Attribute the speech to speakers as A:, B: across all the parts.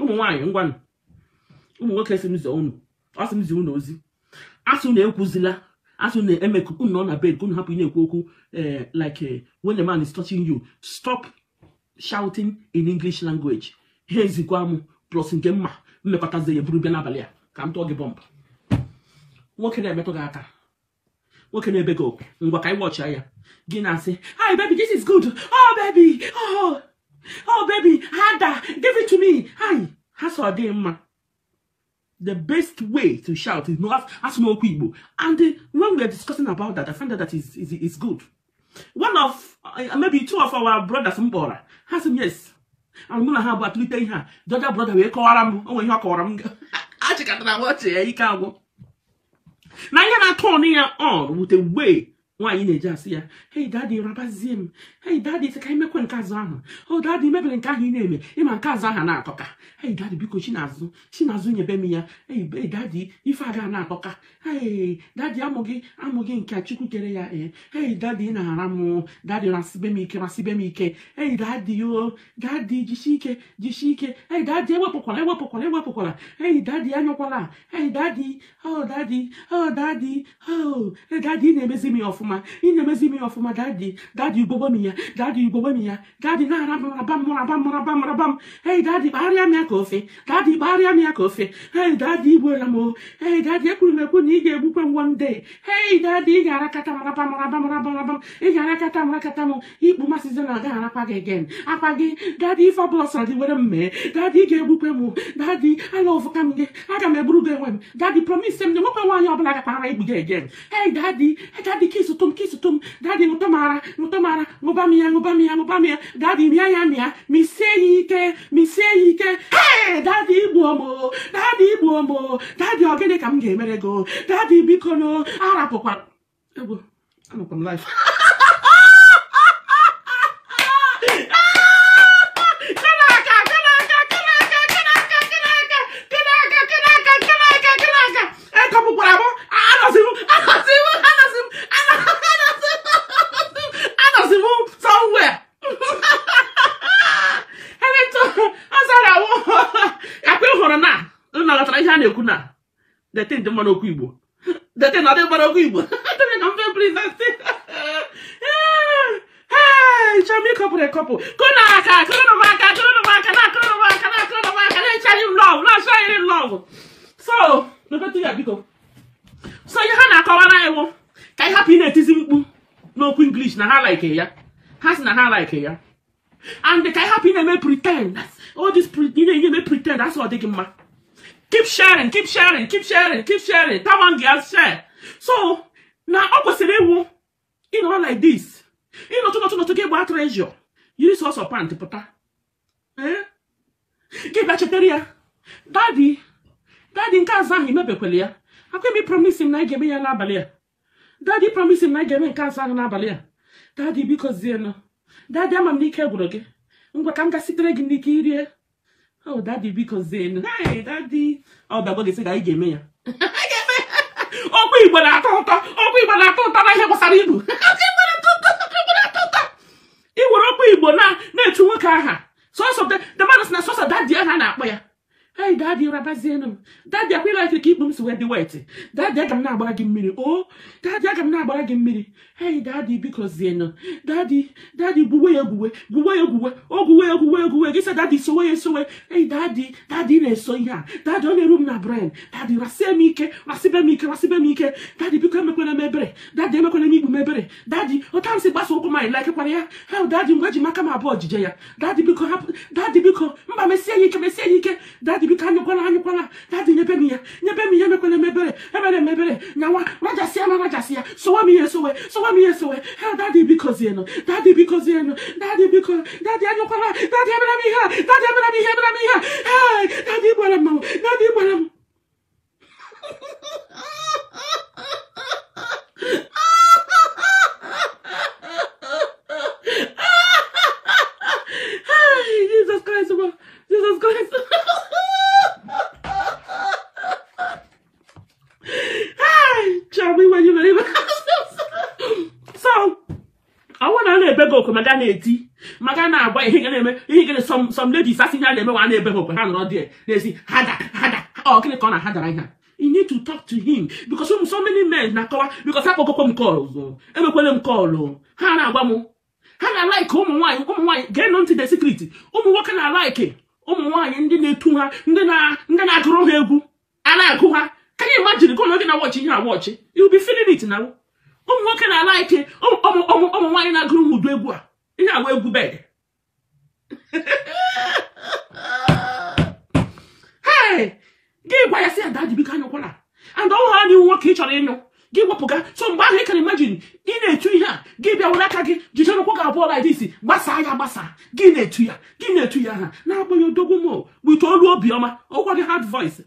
A: ụmụ ngwanụ ụmụ nwoke si m ọ m ozi asụ na-ekwuzila asụ na-eme nọ na bed ka unu hapụ na-ekwu okwu eh, like eh, when a man is touching you stop shouting in English language ha ezikwa m plus nke mma mmekọtazi ya buru bịa n'abalị a ka m tụọ gị bọmbụ nwoke na-emetụ gị aka nwoke na-ebe gị okwu ngwa ka anyị wọchịa ya gị na-asị hi baby this is good oh baby oh Oh, baby, Ada, give it to me. Hi, that's our day, ma. The best way to shout is not ask more people. And uh, when we are discussing about that, I find that that is, is, is good. One of, uh, maybe two of our brothers, Mbora, has him, yes. And Muna have at least her. The other brother, we call him. Oh, you call him. I check out that watch, yeah, you can't go. Now you're not turning on with a way nwaanyị na-eji asị ya hei dadi rabazie m hei dadi sị ka anyị mekwe nke azụ ahụ o oh, dadi mebere nke ahụ ị na-eme ịma nke azụ aha na-atọka hei dadi biko chinazụ chinazụ nyebe m ya ei dadi ife aga na-atọka hei dadi amụghị amụghị nke chukwu kere ya ee eh. hei dadi na-ara m dadi rasibe m ike rasibe m ike ei dadi o dadi jisie ike jisie ike ei dadi ewepụkwara ewepụkwara ewepụkwara ei dadi anọkwala ei dadi o oh, dadi o oh, dadi o eh, dadi na-emezi m ya ọfụma ọfụma ị na-emezi ime ya ọfụma dadi dadi ugbogbo m ya dadi ugbogbo m ya dadi na-ara m raba m raba m raba m raba m hei dadi kpagharịa m ya ka ofe dadi kpagharịa m ya ka ofe hei dadi igbuola m o hei dadi ekwuru m ekwu na ị ga-egbukwe m wonde hei dadi ị ga-arakata m raba m raba m raba raba m ị ga-arakata m rakata m ikpu masịzi na agaghị arakwa gị egen akwa gị dadi ife ọbụla sọrọ dị were m mee dadi ga-egbukwe m dadi ala ọvụka m gị aga m eburu gị enwe m dadi promise m na enwekwe nwaanyị ọbụla gakpara igbu gị egen hei dadi dadi ka ịzụta tom kisu tom dadi mutomara mutomara mubamia mubamia mubamia dadi miaya mia miseyike miseyike hey dadi igbu ọmụ dadi Daddy ọmụ dadi ọ Daddy ka m ga-emere gị dadi biko no arapụkwa egwu anọkwa m life na-ekwu na dete dị mmanụ okwu igbo dete na dị mmanụ okwu igbo adịrị na mfe blizasti chọm ịkọpụrụ ekọpụ kụna aka kụrụ m aka kụrụ m aka na akụrụ m aka na akụrụ m aka na-echarị m lọv na-achọghịrị m lọv so ya biko so ihe ha na-akọwara iwu ka ị hapụ ị na-etizi mkpu n'okwu inglish na ha like ya ha si na ha like ya and ka ị hapụ ị na-eme pretend all this ị na-enye eme pretend asị ọ dịghị mma keep sharing keep sharing keep sharing keep sharing that one girl share so na ọ kwesịrị ịwụ ịnọrọ like this ịnọtụ nọtụ nọtụ gị gbaa treasure yiri sọsọ pant pụta eh? gị bịa chetara ya dadi dadi nke azụ ahụ imebekwele ya akwa emi promise m na ị ga-eme ya n'abalị a dadi promise m na ị ga-eme nke azụ ahụ n'abalị a dadi biko zienụ dadi ama m n'ike gwụrụ ngwa ka m ga sitere gị n'ike irie oh dadi biko zienu dadi ọ bịagwa gị sị ga anyị ga-eme ya ọkwa igbo na-atọ ụtọ ọkwa igbo na-atọ ụtọ na ihe gbasara ibu ị nwere ọkwa igbo na-echu nwoke aha sọsọ the man na sọsọ dadi ha na-akpọ ya hey dadi rabazienụ m dadi akwela ka ikpu m si wee dị wet dadi aga m na-agbara gị mmiri o dadi aga m na-agbara gị mmiri hey dadi biko zienụ dadi gbuwe gwuwe ya egwuwe gwuwe ya ogwuwe o gwuwe ya egwuwe egwuwe gị sa dadi sowe ya esowe hey dadi dadi na-eso ihe a dadi ọ na-eru m na bren dadi rasie m ike rasibe m ike rasibe m ike dadi biko emekwere m ebere dadi emekwere m ikpu m ebere dadi ụta m si gbasa ụkwụ m anyị ya hel dadi mgbe ji m aka m abụọ ojije ya dadi biko hapụ dadi biko mba mesie ya ike mesie ya ike dadi bi ka nyokola nyokola dadi nyebe mi ya nyebe mi ya mekwele mebere ebere mebere nyawa rajasia na rajasia sowa mi yesowe sowa mi yesowe he dadi biko zieno dadi biko zieno dadi biko dadi anyokola dadi ebere mi ha dadi ebere mi ha ebere mi ha he dadi igbara mmanwụ dadi igbara m okwe ma ga na-eti ma ga na-agba ihe ga na-eme ihe ga na some ladies asị ihe a na-eme wa na-ebe ha okwe ha nọrọ dị na-esi hada hada ọ gịnị ka ọ na hadara ihe i need to talk to him because ụmụ so many men na-akọwa because ha kpọkọkwa m kọl emekwele m kọlụ ha na-agba m ha na alaike ụmụ nwaanyị ụmụ nwaanyị gee nụ ntị de secret ụmụ nwoke na alaike ụmụ nwaanyị ndị na-etu ha ndị na-agụrụ ha egwu a na-agụ ha ka anyị imajiri gụ na oge na wọchị ihe awọchị you be feeling na ụmụ nwoke na-alaiki ụmụ nwaanyị na-agụrụ ojú egwu a ihe awụ egwu bed gị gwa ya si ada jibika anyụkwala and ọhụrụ anyị nwoke ị chọrọ ịnyụ gị wepụga so mgbe ahụ ị kara imajin ị na-etu ihe a gị bịa were aka gị jide ụkwụ gị abụọ laidisi gbasa ya gbasa gị na-etu ya gị na-etu ya ha na-agbaghị odogwu m wite olu obiọma ọgwa gị hard voice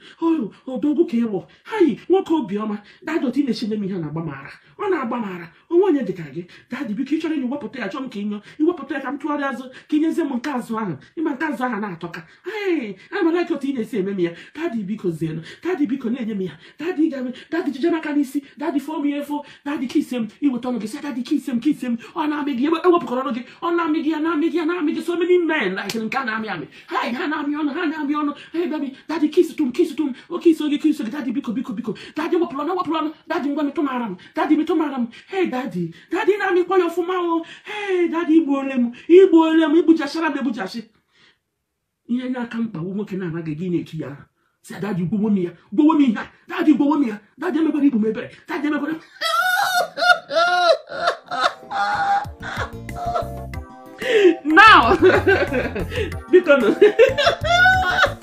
A: odogwu ka ịwụ ha yi nwoke obiọma dadoti na-echenye m ihe na-agba mara ọ na-agba mara onwe onye dịka gị dadị biko ị chọrọ ịnye wepụta ya chọọ m ka ịnyọ iwepụta ya ka m tụgharịa azụ ka ịnyezie m nke azụ ahụ ịma nke azụ ahụ na-atọka atọ ka amalaka otu ị na-esi eme m ya dadị biko zienụ dadị biko na-enye m ya dadị jije n'aka n'isi dadị daddy phone me for daddy kiss him he will turn on say daddy kiss him kiss him Oh, na me gị ewe pụkọrọ ọnụ gị na me gị oh, na me gị na me gị so many men like in Ghana. Me, me. amị hai ha na-amị ọnụ ha na-amị ọnụ hey baby daddy kiss tum kiss tum o oh, kiss oge kiss oge daddy biko biko biko daddy what plan? What plan? daddy ngwa metụ mara m daddy me mara m hey daddy daddy na me call your ọfụma o oh. hey daddy igbuole m igbuole m igbujachara buja egbujasi ihe n'aka mkpa nwoke na-anaghị gị na-etu ya si adaaji gbowo m ya gbowo m ihe a daaji gbowo m ya daaji emekwara ibu m ebere daaji emekwara now biko